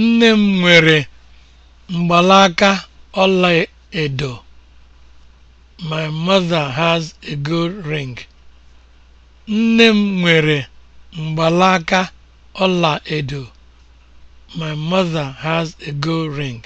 Nne m nwere mgbalaka ọla edo. My mother has a ọla edo. My mother has a gold ring.